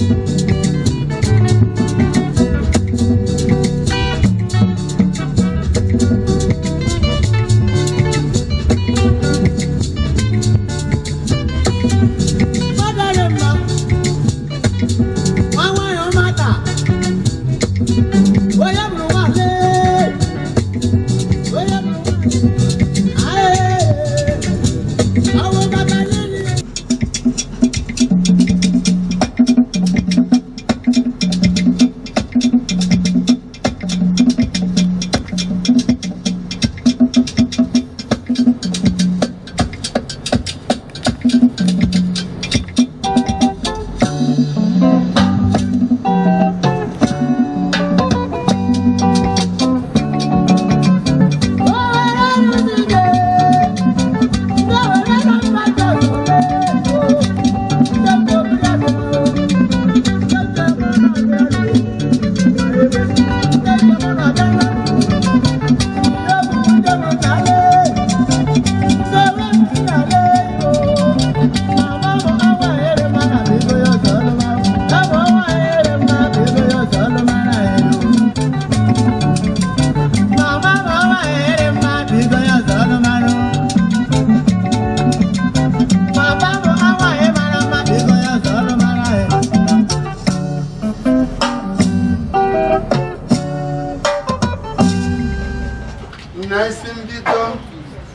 Thank you.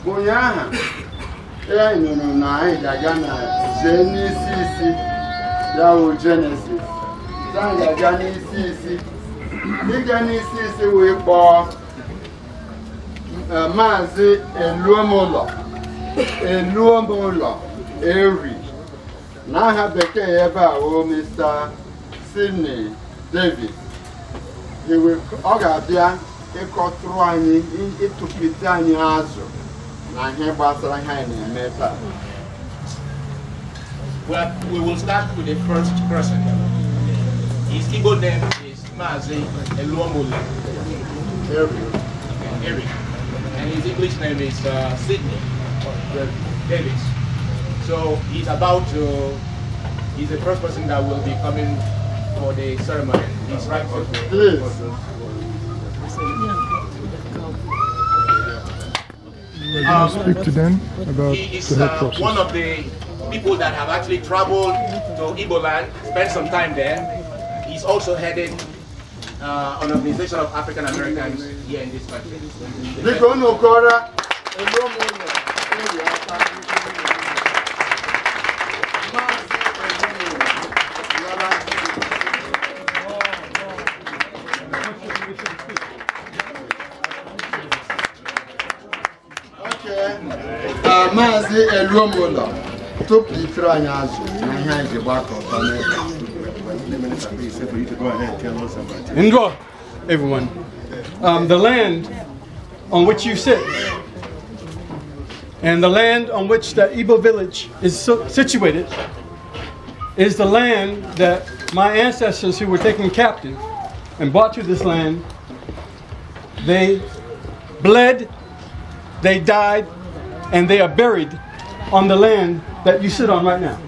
ụnyaahụ ya nụrụ na anyị ga-aga na jee n'isi isi ya wụ jenesis ya ga-aga n'isi isi ịga n'isi isi wee kpọọ eh, maazị eluomụlọ eluomụlọ eri aha bekee ebe a wụ Mr. Sidney david ọ ga-abịa ịkọtụrụ anyị ịtụpịte anyị azụ Well, we will start with the first person. His Igbo name is Mazi Eluomule. Eric. Eric. And his English name is uh, Sydney Davis. So he's about to, he's the first person that will be coming for the ceremony. He's right. Please. um, speak to them about is, the uh, one of the people that have actually traveled to Iboland, spent some time there. He's also headed uh, an organization of African Americans here in this country. si Indra, everyone, um, the land on which you sit and the land on which the Igbo village is situated is the land that my ancestors who were taken captive and brought to this land, they bled, they died, and they are buried on the land that you sit on right now.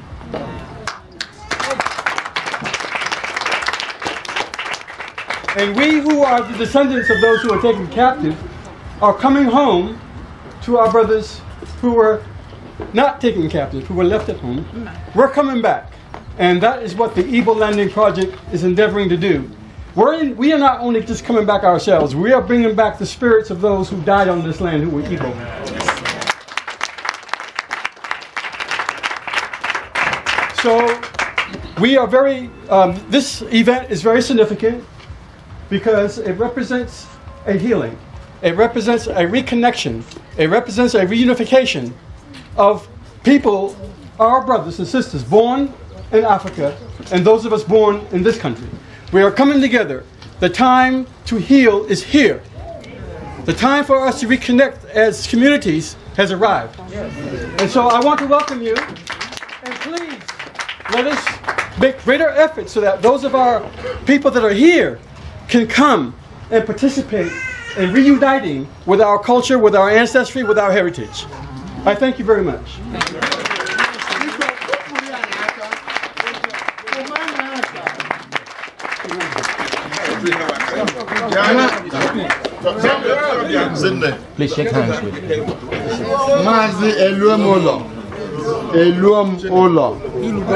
And we who are the descendants of those who are taken captive are coming home to our brothers who were not taken captive, who were left at home. We're coming back. And that is what the Evil Landing Project is endeavoring to do. We're in, we are not only just coming back ourselves, we are bringing back the spirits of those who died on this land who were evil. So we are very, um, this event is very significant because it represents a healing. It represents a reconnection. It represents a reunification of people, our brothers and sisters, born in Africa and those of us born in this country. We are coming together. The time to heal is here. The time for us to reconnect as communities has arrived. And so I want to welcome you. Let us make greater efforts so that those of our people that are here can come and participate in reuniting with our culture, with our ancestry, with our heritage. I thank you very much. Please shake hands with me eluo m mm.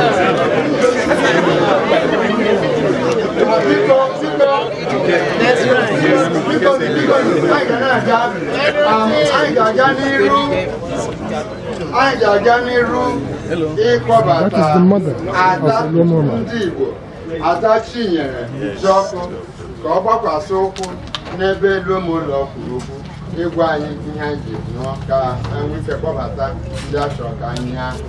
anyị ga-aga n'iru aga n'iru ịkpọbata ada ndị Igbo ada Chinyere Jiọkụ ka ọ gbakwasị ụkwụ n'ebe elu ụmụụlọ kwuru okwu ịgwa anyị ihe anyị ji nwike kpọbata ndị achọ ka anyị ahụ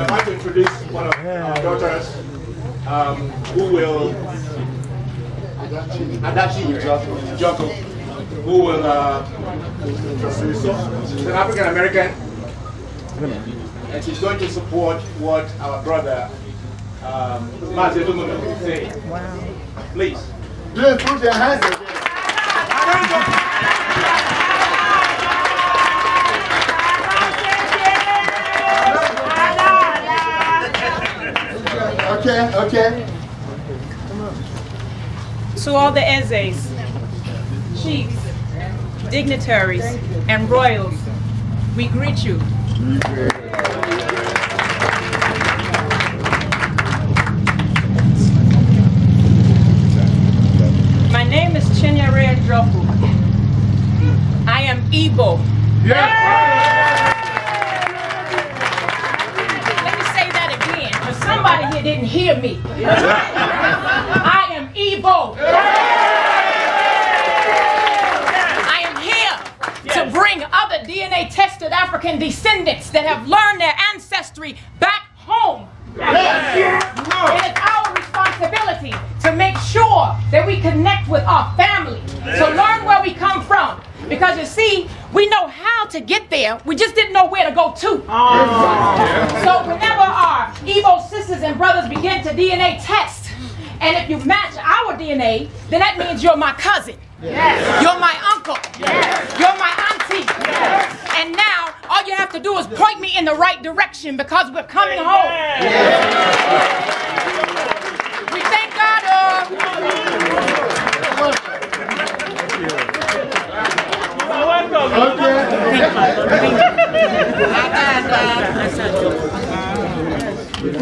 I'd like to introduce one of our daughters um, who will, Adachi Joko, who will, uh, she's an African American, and she's going to support what our brother, um, Mazetumo, is saying. Please. Please put your hands Okay. To all the Ezes, chiefs, dignitaries, and royals, we greet you. My name is Chinyere Dropu. I am Igbo. Somebody here didn't hear me. I am evil. I am here to bring other DNA tested African descendants that have learned their ancestry back home. It is our responsibility to make sure that we connect with our family, to learn where we come from. Because you see, we know how to get there, we just didn't know where to go to. Oh, so whenever our sisters and brothers begin to DNA test. And if you match our DNA, then that means you're my cousin. Yes. You're my uncle. Yes. You're my auntie. Yes. And now all you have to do is point me in the right direction because we're coming Amen. home. Yes. We thank God. Uh, welcome. Okay.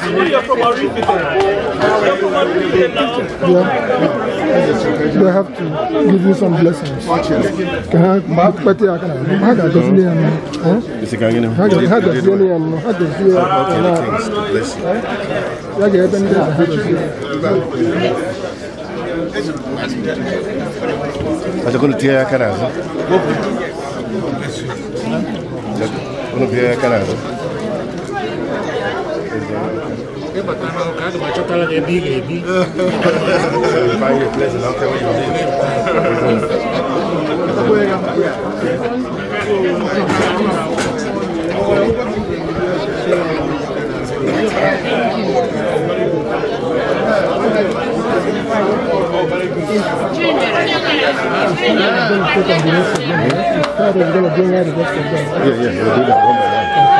They have to give you some blessings. Can I mark Akana? does name? does name? does name? does name? Io battevo avvocato, ma c'ho la mia big e big. Fai il pleasure, que Che voglio Yeah, yeah, we'll do that one by one.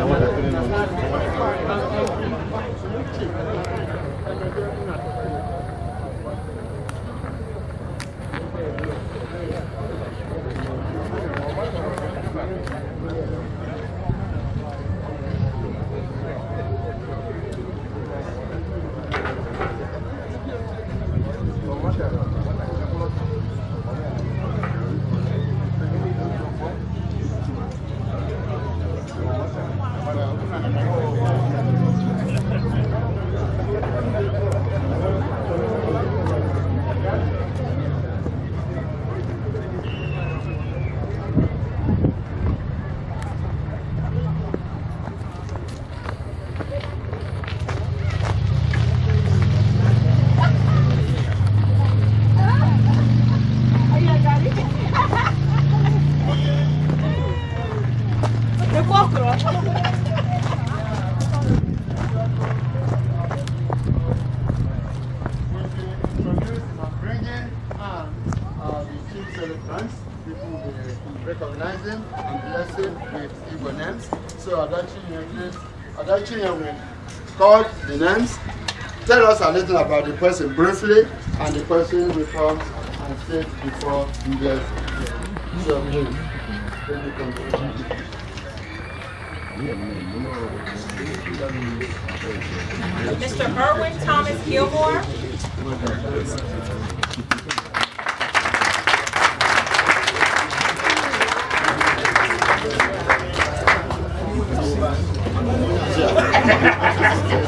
Thank you. Tell us a little about the person briefly, and the person will come and sit before you guys. So, Mr. Erwin Thomas Gilmore.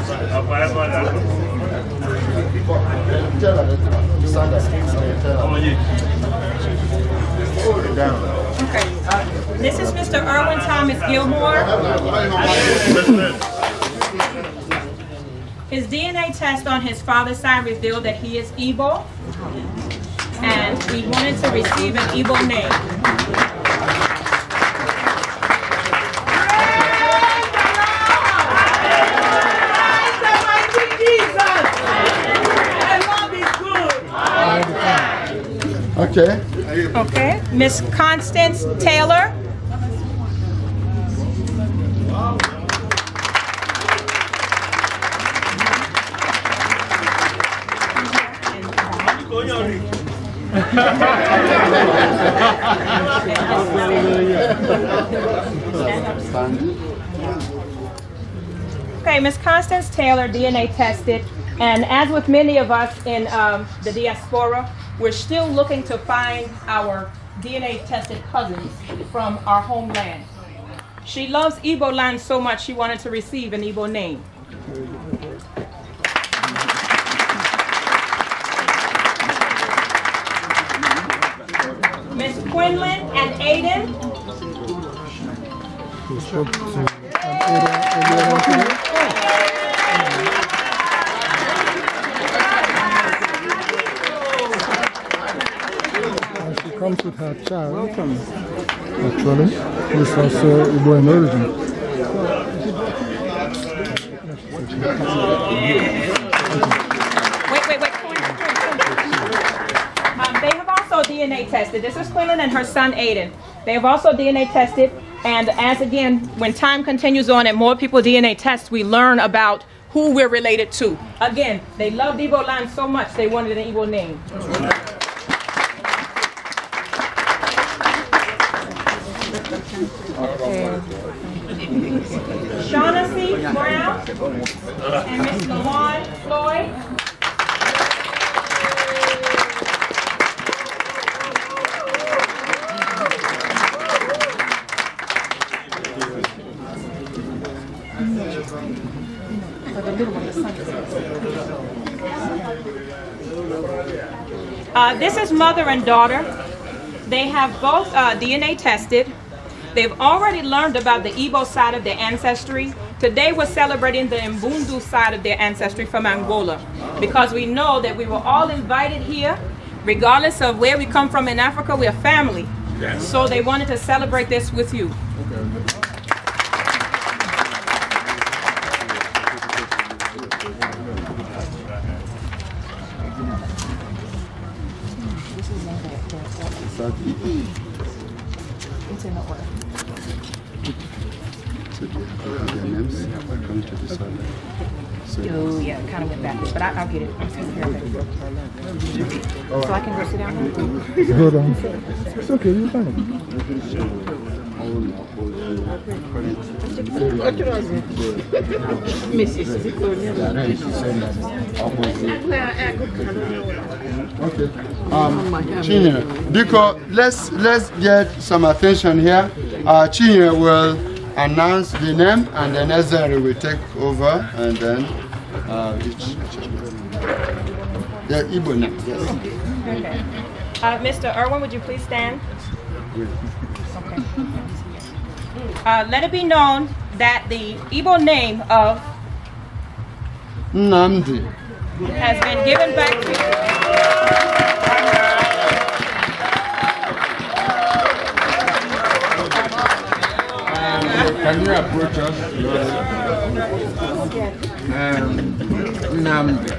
This is Mr. Irwin Thomas Gilmore. His DNA test on his father's side revealed that he is evil, and we wanted to receive an evil name. Okay. Okay. Miss Constance Taylor. okay, Ms. Constance Taylor, DNA tested, and as with many of us in um, the diaspora, we're still looking to find our DNA tested cousins from our homeland. She loves Igbo land so much she wanted to receive an Igbo name. Quinlan and Aiden. And she comes with her child, Welcome. actually, who is also Igbo uh, in origin. Carolyn and her son Aiden. They have also DNA tested and as again, when time continues on and more people DNA test, we learn about who we're related to. Again, they loved Igbo land so much they wanted an Igbo name. Shaughnessy Brown and Miss Lawan Floyd. Uh, this is mother and daughter. They have both uh, DNA tested. They've already learned about the Igbo side of their ancestry. Today we're celebrating the Mbundu side of their ancestry from Angola because we know that we were all invited here. Regardless of where we come from in Africa, we're family. Yes. So they wanted to celebrate this with you. Okay. It's in the order. So do you have the MMs come to this one? So oh, yeah, kind of went backwards, but I, will get it. So I can go sit down Hold on. It's okay, you're fine. Mais c'est Okay. Um, Chinye, let's let's get some attention here. Uh, will announce the name, and then Ezra will take over, and then uh, each, the Ibo name. Yes. Okay. Uh, Mr. Irwin, would you please stand? Okay. Uh, let it be known that the Igbo name of Nandi has been given back to you. can you approach us? Um, Namdi.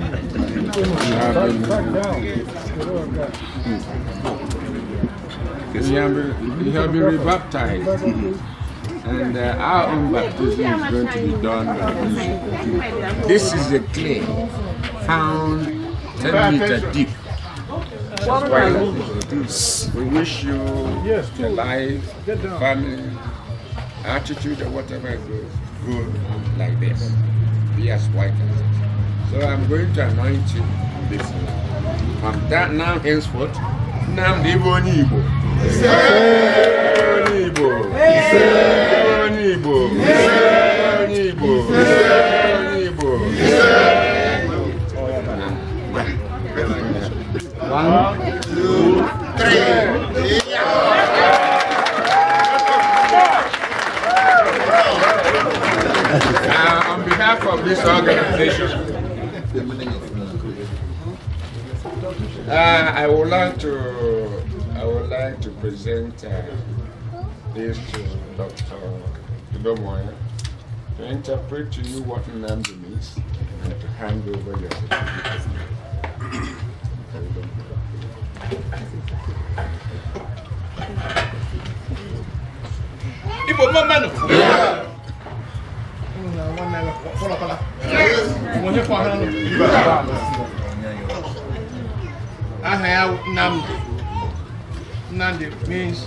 You have been, you have been rebaptized. And uh, our own baptism is going to be done by this. This is a clay found 10 meters deep. We wish you a life, family, attitude, or whatever good, good like this. Be as white as it. So I'm going to anoint you this From that now henceforth, Namdi Bonibo. Yeah. One, two, three. Uh, on behalf of this organization, uh, I would like to I would like to present uh, this to Dr. Idomoya to interpret to you what Nnamdi means and to hand over your certificate. Ibo Mamano! Aha ya Nandi. Nandi means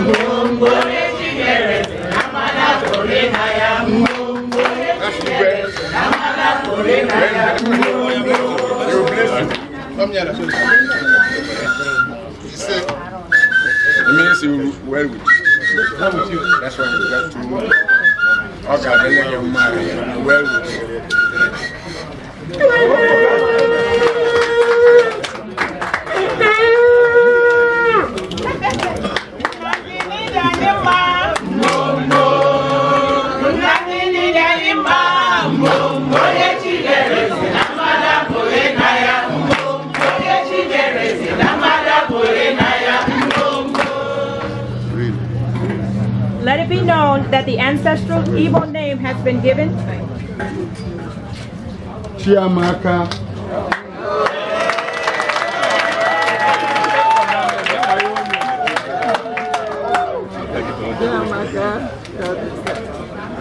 mgbogbore chinyereze na mmanya kore na ya mgbogbore chinyereze na mmanya kore na ya It means you well with you. How with you? That's why you got to okay, then you marry well with you. that the ancestral Igbo name has been given? Chiamaka.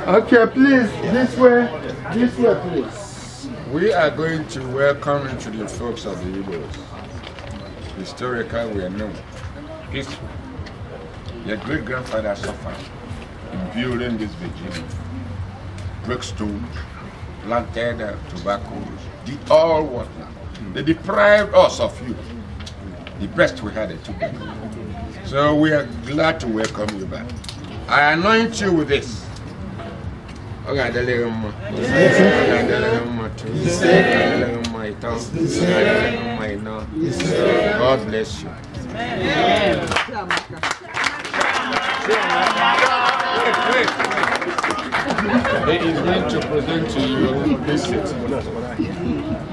Okay, please, this way, this way, please. We are going to welcome into the folks of the Igbos. Historically, we are known. If your great-grandfather suffered, during this vigil, brickstone, planted uh, tobacco, did all what now? Mm. They deprived us of you. The best we had, it took So we are glad to welcome you back. I anoint you with this. God bless you. Amen. He is going to present to you this set.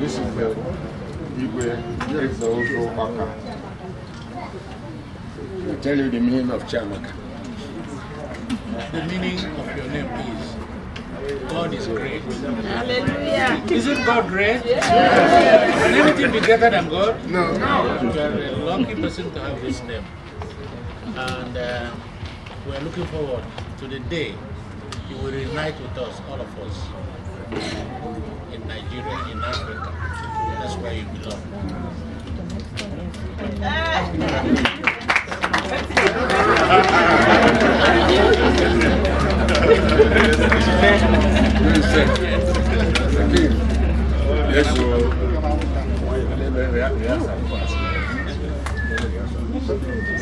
This is the Igwe Exozo Maka. I'll tell you the meaning of Chamaka. The meaning of your name is God is great. Hallelujah. Isn't God great? Yes. yes. Can anything be greater than God? No. No. You are a lucky person to have this name. And uh, we're looking forward to the day He will unite with us, all of us, in Nigeria, in Africa. That's where you belong.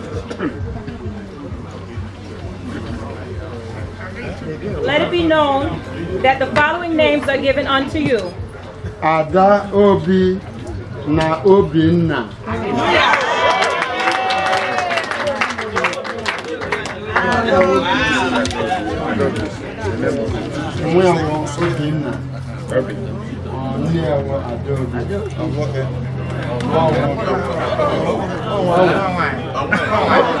let it be known that the following names are given unto you. Ada Obi na Obinna. Nwe Ada Obi. Ọwọ́ ọwọ́ ọwọ́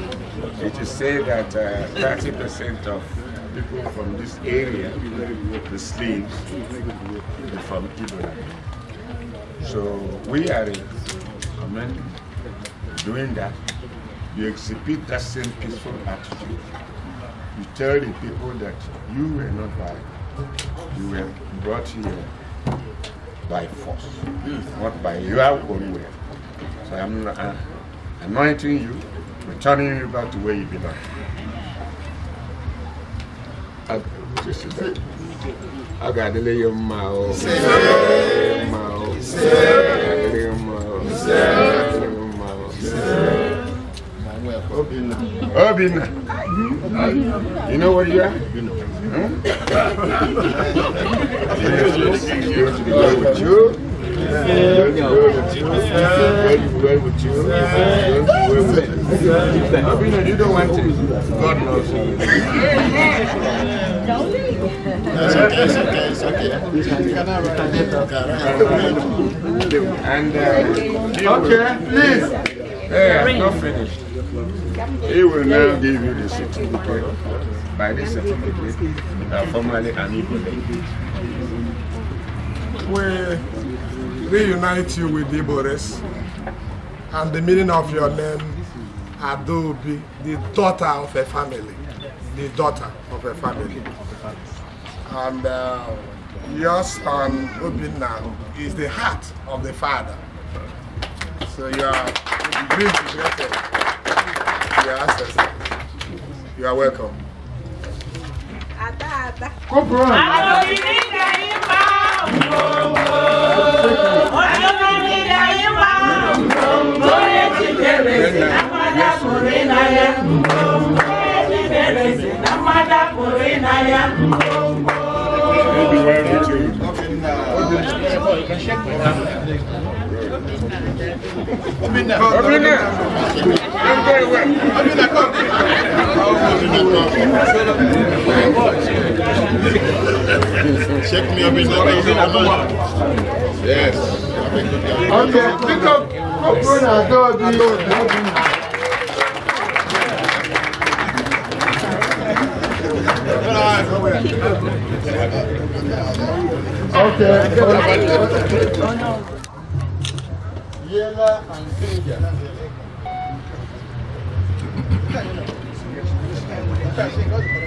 It is said that 30% uh, of people from this area, the slaves, from Ibrahim. So we are I doing that. You exhibit that same peaceful attitude. You tell the people that you were not violent. You were brought here by force, not by your own will. So I'm uh, anointing you returning you back to where you belong. A ga you know where you are? you know. going to with you. You're going with you. are with you. Abina, you don't want to. God knows. okay, it's okay, it's okay. And, uh, okay, please. Yeah, I'm not finished. He will now give you the certificate. By this certificate, uh, formally and equally. We reunite you with Igbo and the meaning of your name Adobe, the daughter of a family. The daughter of a family. And uh, your son, Obinna, is the heart of the father. So you are great grateful. Your ancestor. You are welcome. Ada, ada. Come on. Adobe, Adobe, Adobe, Adobe, Adobe, I'm ịna ya ebere si na mmada don't go do you? Okay. Yela and Kenya.